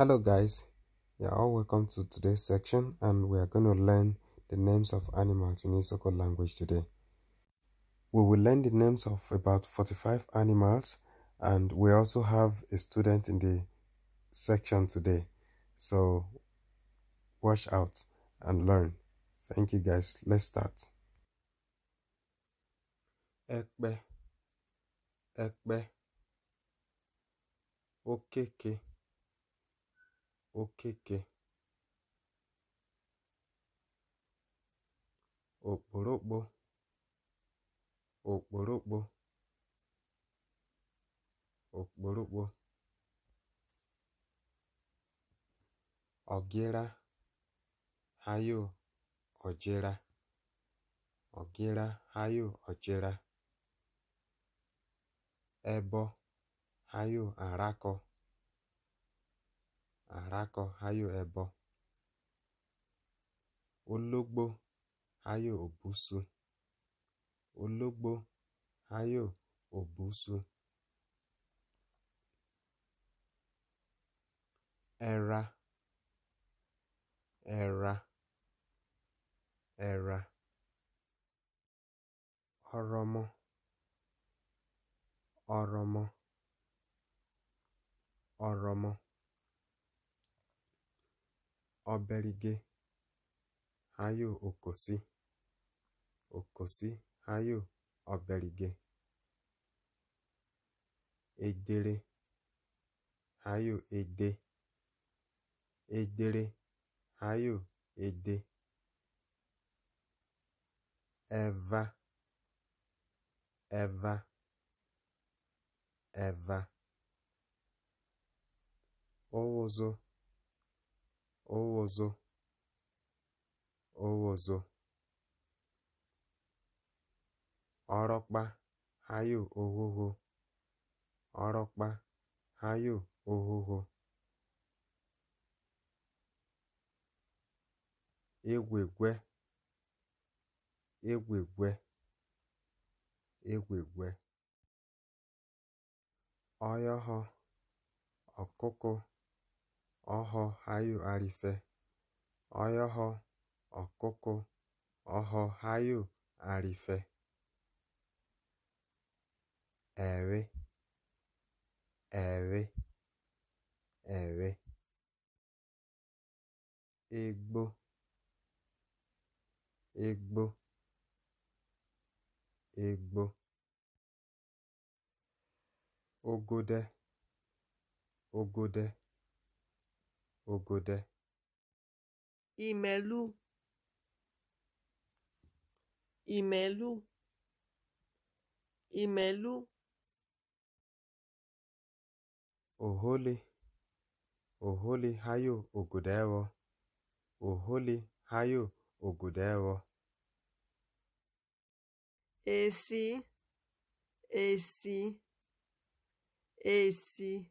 hello guys you're all welcome to today's section and we are going to learn the names of animals in Isoko language today we will learn the names of about 45 animals and we also have a student in the section today so watch out and learn thank you guys let's start Ekbe, ekbe. okay, okay. okeke okporokpo, okporokpo, okporokpo, ọ̀gịra hayo ọ̀jịra ọ̀gịra hayo ojira Ebo hayo arakọ. àrákọ hayo ẹbọ ologbo háyó obusu ológbò ọrọ òbúsu ọrọmọ ọrọmọ Oberige hayo Okosi Okosi hayo Oberige Edere hayo Ede Edere hayo Ede Eva Eva Eva Owozo Owozo Owozo Ọrọkpa hayo ohoho Ọrọkpa hayo ohoho Egwegwe Egwegwe Egwegwe Ọyọhọ ọkụkụ oho hayo arife oyoho okuku oho hayo arife ewe ewe ewe igbo igbo igbo ogode ogode Ogode Imelu Imelu Imelu Oholi Oholi hayo ogodewo Oholi hayo Esi Esi Esi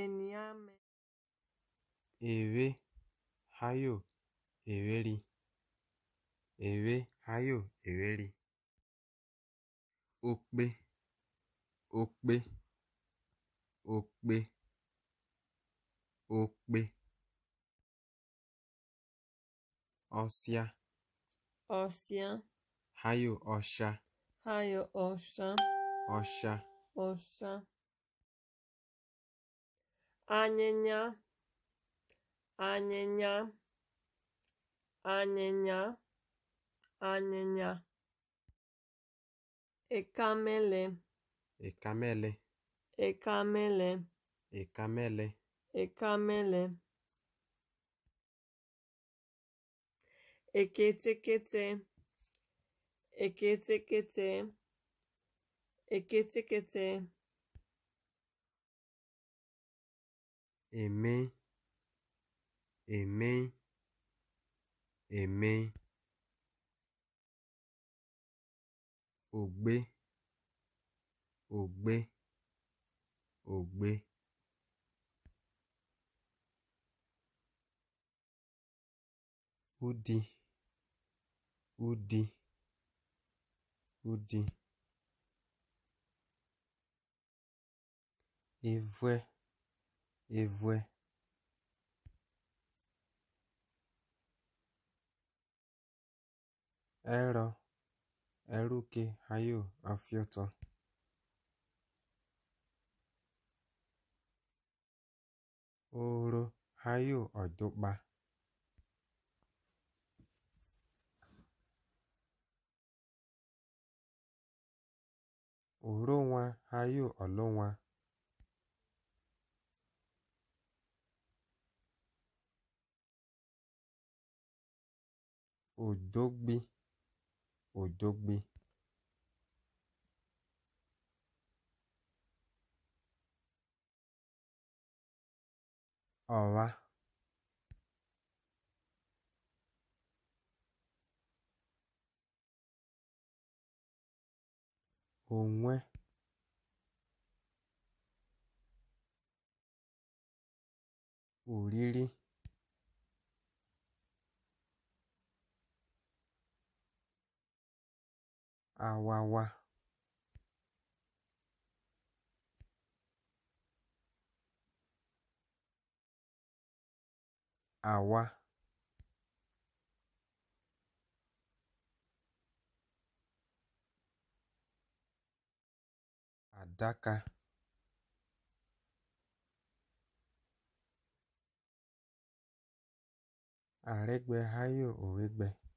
Eníame ewe hayo eweri ewe hayo eweri okpe okpe okpe okpe ọsịa ọsịa hayo ọsha hayo ọsha ọsha ọsha anyịnya anyịnya anyịnya anyịnya ekamele ekamele ekamele ekamele ekamele eketekete eketekete eketekete èmi, èmi, èmi. Ògbé, ògbé, ògbé. Udi, udi, udi. voilà. evue ẹrọ eruke hayo afiọtọ oro hayo ọdụkpa oronwa hayo ọlụnwa òdógbè òdógbè ọ̀wa ònwe òrírí awawa awa, adaka, Àrégbé Ayo Oregbe